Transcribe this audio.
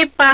ịpa